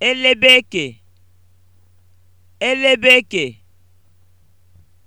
elebeke elebeke